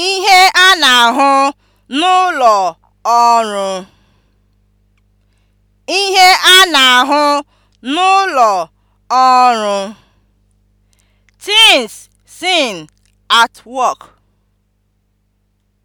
ihe a na-ahụ n'ụlọ ọrụ ihe a na-ahụ n'ụlọ ọrụ (things seen at work)